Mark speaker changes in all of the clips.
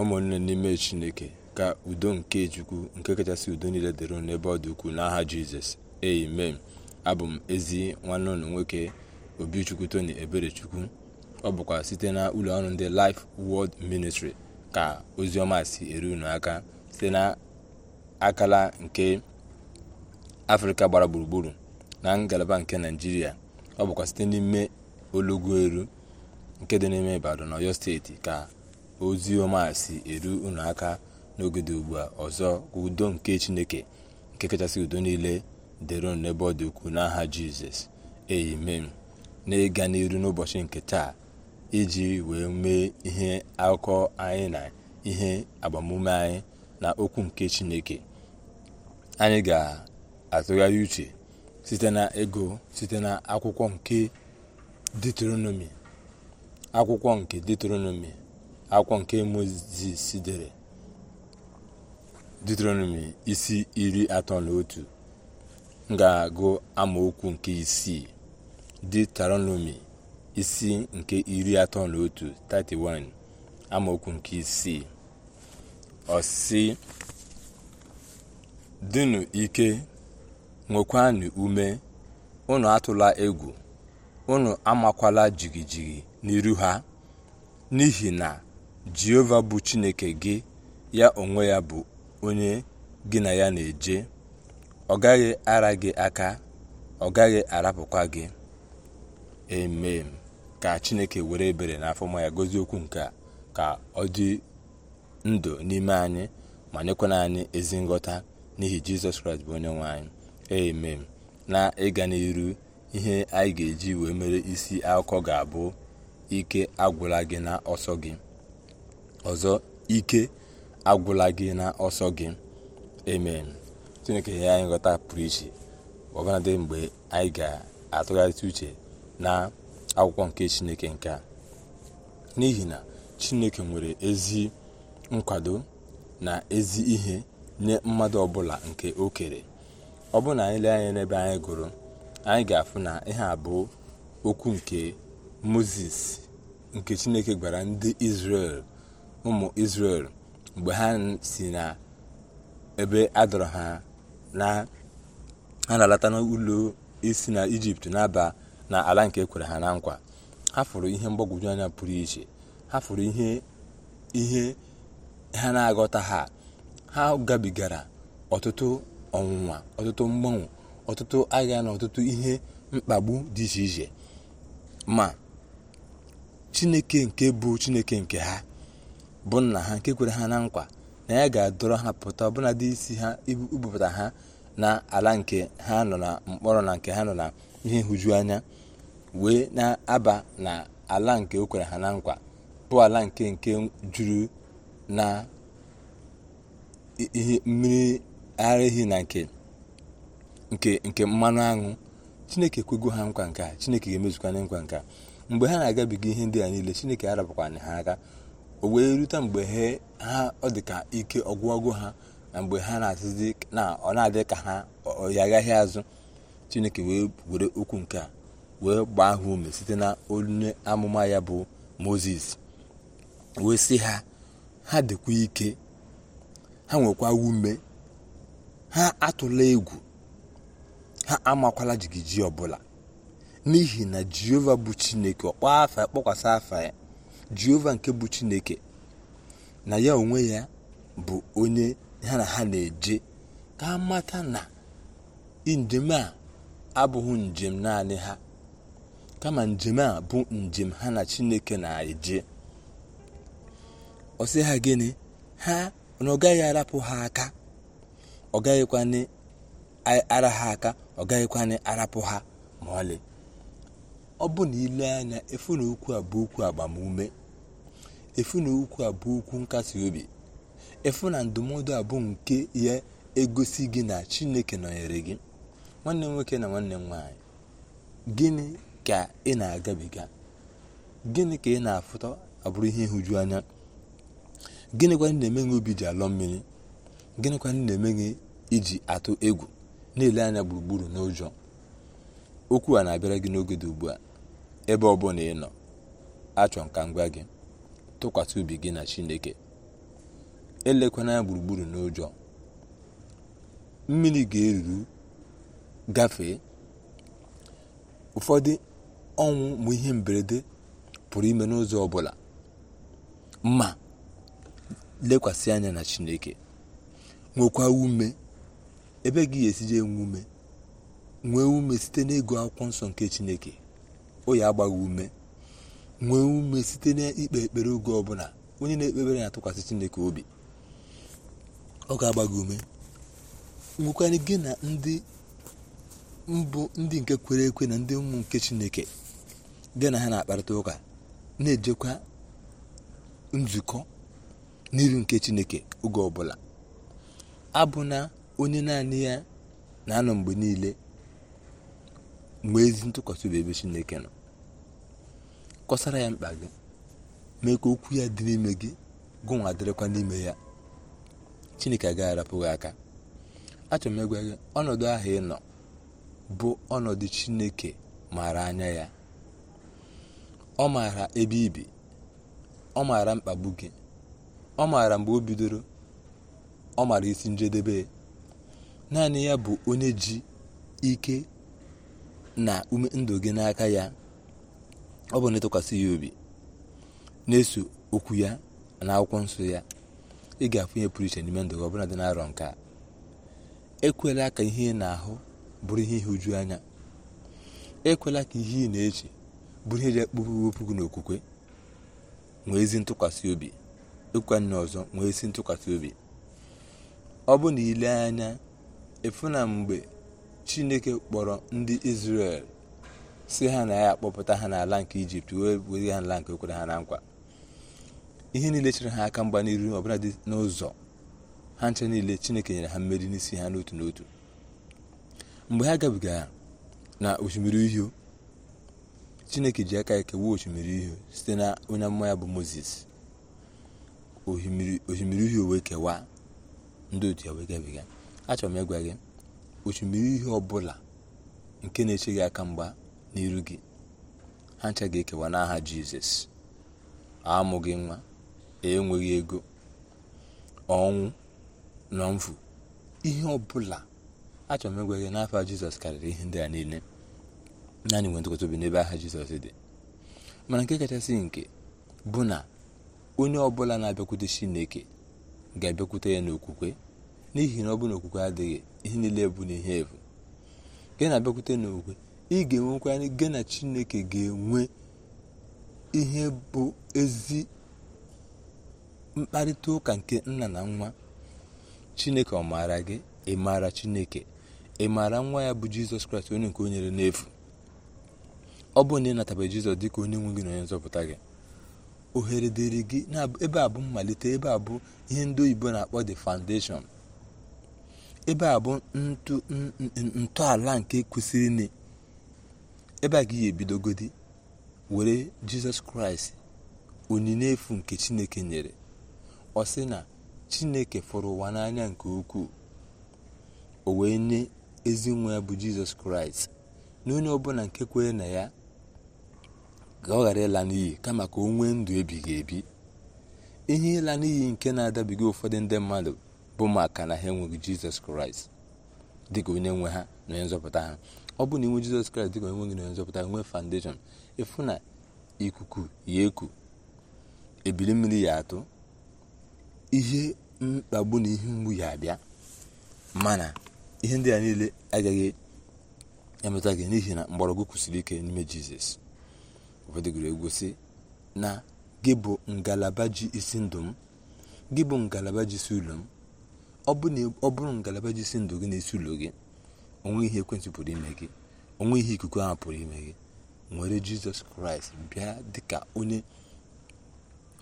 Speaker 1: ụmụnne n'ime chineke ka udo nke chukwu nke kachasị udo niile dịrị n'ebe ọ dị ukwuu n'aha jizọs amen abụ m ezi nwanne ụlọ nwoke obichukwu tony eberechukwu ọ bụkwa site na ụlọ ọrụ ndị life world ministry ka ozi ọma si eru unu aka site na akala nke afrịka gbara gburugburu na ngalaba nke naijiria ọ bụkwa site n'ime olugbu nke dị n'ime ibadan ọyọ steeti ka ozi ọma si eru unu aka ugbu a ọzọ ka udo nke chineke nke kachasị udo niile dịrị n'ebe ọ dị ukwuu n'aha jizọs amen na-ịga n'iru n'ụbọchị nke taa iji wee mee ihe akụkọ anyị na ihe agbamume anyị na okwu nke chineke anyị ga-atụgharị uche site na ego site na akwụkwọ nke detronomi akwụkwọ nke detronomi akwọ nke mozis dere deuteronomi isi iri atọ na otu ga-agụ amaokwu nke isii deuteronomi isi nke iri atọ na otu 31 amaokwu nke isii ọsị dịnụ ike nwekwanụ ume unu atụla egwu unu amakwala jigijigi n'iru ha n'ihi na jehova bụ chineke gị ya onwe ya bụ onye gị na ya na-eje ọ gaghị ara gị aka ọ gaghị arapụkwa gị eme ka chineke were ebere n'afọ ma ya gozi okwu nke ka ọ dị ndụ n'ime anyị ma nyekwana anyị ezi nghọta n'ihi jizọs kraịst bụ onye nwe anyị na ịga n'iru ihe anyị ga-eji wee mere isi akụkọ ga-abụ ike agwụla gị na ọsọ gị ọzọ ike agwụla gị na ọsọ gị amen chineke ya anyị nghọta pụrụ iche ọbụladị mgbe anyị ga-atụgharịta uche na akwụkwọ nke chineke nke a n'ihi na chineke nwere ezi nkwado na ezi ihe nye mmadụ ọbụla nke o kere ọ bụrụ na anyị lee anya n'ebe anyị gụrụ anyị ga-afụ na ihe bụ okwu nke moses nke chineke gwara ndị israel ụmụ israel mgbe ha si na ebe adọrọ ha na ha na-alata n'ụlọ isi na ijipt na-aba na ala nke ekwere ha na nkwa ha fụrụ ihe mgbagwoju anya pụrụ iche ha fụrụ ihe ihe ha na-aghọta ha ha gabigara ọtụtụ ọnwụnwa ọtụtụ mgbanwe ọtụtụ agha na ọtụtụ ihe mkpagbu dị iche iche ma chineke nke bụ chineke nke ha bụ nna ha nke kwere ha na nkwa na ya ga-adọrọ ha pụta ọbụna dị isi ha ibupụta ha na ala nke ha nọ na mkpọrọ na nke ha nọ na ihe nhụju anya wee na-aba na ala nke o kwere ha na nkwa bụ ala nke nke juru na ihe mmiri ara ehi na nke nke mmanụ aṅụ chineke ekwego ha nkwa nke a chineke ga-emezukwa nkwa nke a mgbe ha na-agabiga ihe ndị a niile chineke arabakwana ha aka o wee rute mgbe ha ọ dị ka ike ọgwụgwụ ha na mgbe ha na-asịzi na ọ na-adị ka ha agaghị azụ chineke wee were okwu nke a wee gbaa ha ume site na onye amụma ya bụ moses wee sị ha ha dịkwa ike ha nwekwa ume ha atụla egwu ha amakwala jigiji ọbụla n'ihi na jehova bụ chineke ọkpọ afa kpọkwasị afa ya jehova nke bụ chineke na ya onwe ya bụ onye ha na ha na-eje ka mata na njem a abụghị njem naanị ha kama njem a bụ njem ha na chineke na-eje ọ ha gịnị ha na ọ gaghị arapụ ha aka ọ gaghịkwanị ara ha aka ọ gaghịkwanị arapụ ha ma ọ bụ na ile anya efu na okwu a bụ okwu agbamume efu na okwu abụọ okwu nkasi obi efu na ndụmọdụ abụ nke ya egosi gị na chineke nọnyere gị nwanne m nwoke na nwanne m nwaanyị gịnị ka ị na-agabiga gịnị ka ị na-afụta abụrụ ihe ịhụju anya gịnịkwa ndị na-eme gị obi ji alọ mmiri gịnịkwa ndị na-eme gị iji atụ egwu na-ele anya gburugburu n'ụjọ okwu a na-abịara gị n'oge dị ugbu a ebe ọ bụla ị nọ achọ nka ngwa gị tụkwasị obi gị na chineke elekwana ya gburugburu n'ụjọ mmiri ga-eruru gafee ụfọdụ ọnwụ ma ihe mberede pụrụ ime n'ụzọ ọbụla ma lekwasị anya na chineke nwekwa ume ebe gị ga-esije enwe ume nwee ume site na ego akwụkwọ nsọ nke chineke o ya agbaghị ume nwee ume site n'ikpe ekpere oge ọbụla onye na-ekpebere na-atụkwasị chineke obi ọ ga-agba gị ume nwekwara gị na ndị mbụ ndị nke kwere ekwe na ndị ụmụ nke chineke gị na ha na-akparịta ụka na-ejekwa nzukọ n'iru nke chineke oge ọbụla abụ na onye naanị ya na-anọ mgbe niile mgbe ezi ntụkwasị obi ebe chineke nọ kọsara ya mkpa gị mee ka okwu ya dị n'ime gị gụnwa dịrịkwa n'ime ya chineke agaghị arapụghị aka achọrọ m ịgwa gị ọnọdụ ahụ ị nọ bụ ọnọdụ chineke maara anya ya ọ maara ebe ibi ọ maara mkpagbu gị ọ maara mgbe o bidoro ọ maara isi njedebe naanị ya bụ onye ji ike na ume ndụ gị n'aka ya ọ bụ na ịtụkwasị ya obi na-eso okwu ya na akwụkwọ nsọ ya ị ga-afụnye pụrụ iche n'ime ndụ gị ọbụla dị na-arọ nke a ekwela ka ihe ị na-ahụ bụrụ ihe ihe uju anya ekwela ka ihe ị na-eche bụrụ ihe ji ekpuru wepụ gị n'okwukwe nwee ezi ntụkwasị obi ịkwanye ọzọ nwee ezi ntụkwasị obi ọ bụ na ile anya ịfụ na mgbe chineke kpọrọ ndị Izrel si ha na ya akpọpụta ha n'ala nke ijipt wee were ha n'ala nke okwere ha na nkwa ihe niile chere ha aka mgba n'iru ọbụla dị n'ụzọ ha nche niile chineke nyere ha mmeri n'isi ha n'otu n'otu mgbe ha gabigara na osimiri uhie chineke ji aka ekewa osimiri uhie site na onye amụma ya bụ moses osimiri uhie wee kewa ndị otu ya wee gabiga achọrọ m ịgwa gị osimiri uhie ọbụla nke na-eche gị aka mgba n'iru gị ha ncha ga-ekewa n'aha jizọs amụghị nwa e enweghị ego ọnwụ na mfu ihe ọbụla achọrọ m ịgwa gị n'afọ jizọs karịrị ihe ndị a niile naanị nwe ntụkọta obi n'ebe aha jizọs dị mana nke kachasị nke bụ na onye ọbụla na-abịakwute chineke ga-abịakwute ya n'okwukwe n'ihi na ọ bụ na okwukwe adịghị ihe niile bụ ihe efu nke na-abịakwute n'okwukwe ị ga-enwekwa gị na chineke ga-enwe ihe bụ ezi mkparịta ụka nke nna na nwa chineke ọ maara gị ị maara chineke ị maara nwa ya bụ jizọs kraịst onye nke onyere n'efu ọ bụ na ị natabe jizọs dịka onye nwe gị na onye nzọpụta gị ohere dịrị gị ebe a bụ mmalite ebe a bụ ihe ndị oyibo na-akpọ de foundation ebe a bụ ntọala nke kwesịrị ebe a gị ya ebidogodi were jizọs kraịst onyinye efu nke chineke nyere ọ sị na chineke fụrụ ụwa n'anya nke ukwuu o wee nye ezi nwa ya bụ jizọs kraịst na onye ọbụla nke kwere na ya ga ọ ghara ịla n'iyi kama ka o nwee ndụ ebighị ebi ihe ịla n'iyi nke na-adabiga ụfọdụ ndị mmadụ bụ maka na ha enweghị jizọs kraịst dịka onye nwe ha na onye nzọpụta ha ọ bụrụ na inwe jizọs kraịst dịka onye nwe gị na onye nzọpụta nwe foundation ịfụ na ikuku ya eku ebili mmiri ya atụ ihe mkpagbu na ihe mgbu ya abịa mana ihe ndị a niile agaghị emeta gị n'ihi na mgbọrọgwụ kwụsịrị ike n'ime jizọs ụfọdụgoro egwu na gị bụ ngalaba ji isi ndụ m gị bụ ngalaba ji si ụlọ m ọ bụrụ ngalaba ji si ndụ gị na isi ụlọ gị onwe ihe ekwentị pụrụ ime gị onwe ihe ikuku ahụ pụrụ ime gị nwere jizọs kraịst bịa dịka onye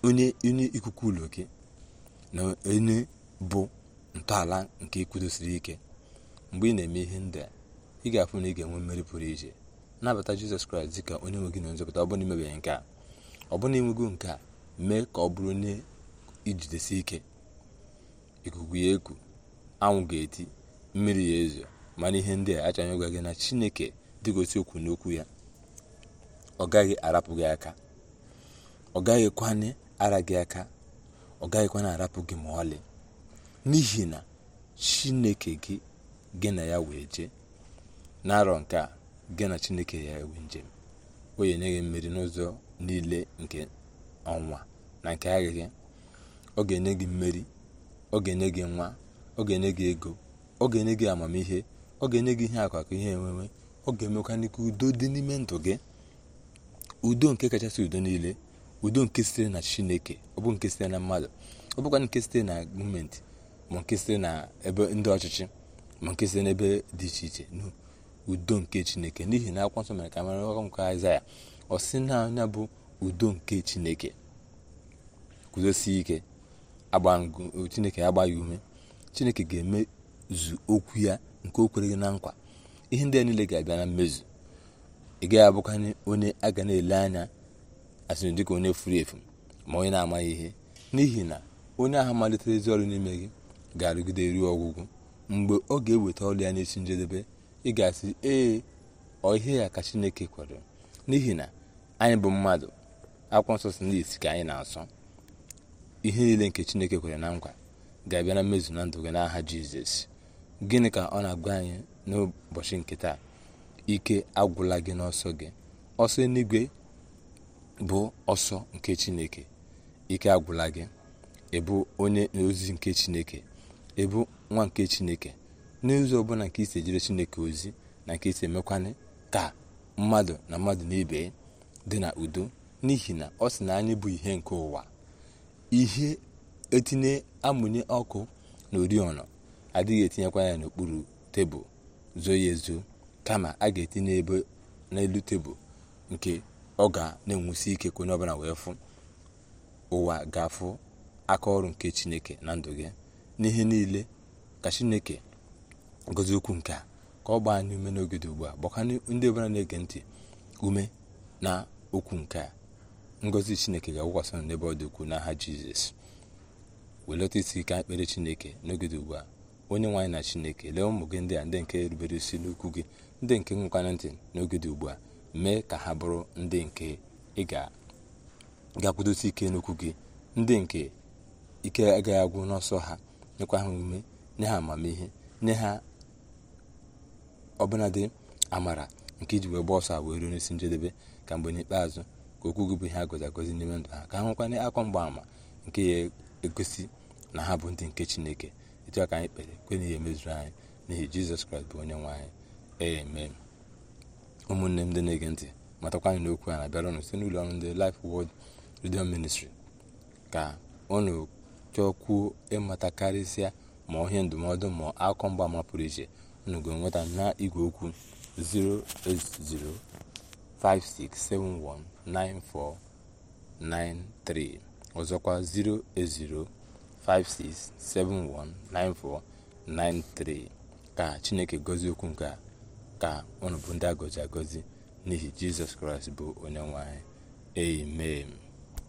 Speaker 1: onye ikuku ụlọ gị na onye bụ ntọala nke ikwudosiri ike mgbe ị na-eme ihe ndị a ị ga-afụ na ị ga-enwe mmeri pụrụ iche nabata jizọs kraịst dịka onye nwe gị na nzọpụta ọ imebeghị nke a ọ bụrụ na enwego nke a mee ka ọ bụrụ onye ijidesi ike ikuku ya eku anwụ ga-eti mmiri ya ezo mana ihe ndị a achọghị ịgwa gị na chineke dịgosi okwu n'okwu ya ọ gaghị arapụ gị aka ọ gaghịkwana ara gị aka ọ gaghịkwana arapụ gị ma ọlị n'ihi na chineke gị gị na ya wee jee n'arọ nke a gị na chineke ya ewe njem o nye gị mmeri n'ụzọ niile nke ọnwa na nke aghịghị ọ ga-enye gị mmeri ọ ga-enye gị nwa ọ ga-enye gị ego ọ ga-enye gị amamihe ọ ga-enye gị ihe akwa ka ihe enweme ọ ga-emekwa n'ike udo dị n'ime ndụ gị udo nke kachasị udo niile udo nke sitere na chineke ọ bụ nke sitere na mmadụ ọ bụkwa nke sitere na gọọmenti ma nke sitere na ebe ndị ọchịchị ma nke sitere n'ebe dị iche iche udo nke chineke n'ihi na akwụkwọ nsọ mere ka mara ọkọ nke aịzaya ọ na anya bụ udo nke chineke guzosie ike agba chineke agba ya ume chineke ga-eme zu okwu ya nke o kwere gị na nkwa ihe ndị a niile ga-abịa na mmezu ị gaghị abụkanye onye a ga na-ele anya asịrị dịka onye furu efu ma onye na-amaghị ihe n'ihi na onye ahụ malitere ezi ọrụ n'ime gị ga-arụgide ruo ọgwụgwụ mgbe ọ ga-eweta ọrụ ya n'isi njedebe ị ga-asị ee ọ ihe ya ka chineke kwere n'ihi na anyị bụ mmadụ akwụkwọ nsọ si n'isi ka anyị na-asọ ihe niile nke chineke kwere na nkwa ga-abịa na mmezu na ndụ gị n'aha jizọs gịnị ka ọ na-agwa anyị n'ụbọchị nke taa ike agwụla gị n'ọsọ gị ọsọ eluigwe bụ ọsọ nke chineke ike agwụla gị ịbụ onye ozi nke chineke ịbụ nwa nke chineke n'ụzọ ọbụla nke isi ejere chineke ozi na nke isi emekwana ka mmadụ na mmadụ n'ibe dị na udo n'ihi na ọ sị na anyị bụ ihe nke ụwa ihe etinye amụnye ọkụ na oriọna adịghị etinyekwa ya n'okpuru tebụl zoo ya ezo kama a ga-etinye ebe n'elu tebụl nke ọ ga na-enwusi ike ka onye ọbụla wee fụ ụwa ga-afụ aka ọrụ nke chineke na ndụ gị n'ihe niile ka chineke gozi okwu nke a ka ọ gba anyị ume n'oge dị ugbu a gbakwa ndị ọbụla na-ege ntị ume na okwu nke a ngozi chineke ga-agwụkwasị n'ebe ọ dị ukwuu n'aha jizọs welata isi ike ekpere chineke n'oge dị ugbu a onye nwaanyị na chineke lee ụmụ gị ndị a ndị nke rubere isi n'ukwu gị ndị nke nwekwara ntị n'oge dị ugbu a mee ka ha bụrụ ndị nke ị ga-akwụdosi ike n'ukwu gị ndị nke ike agaghị agwụ n'ọsọ ha nyekwa ha ume nye ha amamihe nye ha ọbụnadị amara nke iji wee gba ọsọ a wee ruo n'isi njedebe ka mgbe n'ikpeazụ ka okwu gị bụ ihe agọzi agozi n'ime ndụ ha ka ha nwekwana akọ mgbaama nke ya egosi na ha bụ ndị nke chineke etu aka anyị kpere kwe na ihe emezuru anyị n'ihi jizọs kraịst bụ onye nwe anyị ee ụmụnne m ndị na-ege ntị matakwa anyị n'okwu a na-abịara ụnụ site n'ụlọ ọrụ ndị Life Word Radio Ministry ka ụnụ chọkwuo ịmata karịsịa ma ihe ndụmọdụ ma akụkọ ama pụrụ iche ụnụ ga-enweta na igwe okwu 08056719493 ọzọkwa 080 56719493 ka chineke gọzie okwu nke a ka unu bụ ndị a gọzi agọzi n'ihi jizọs kraịst bụ onye nwanyị. anyị amen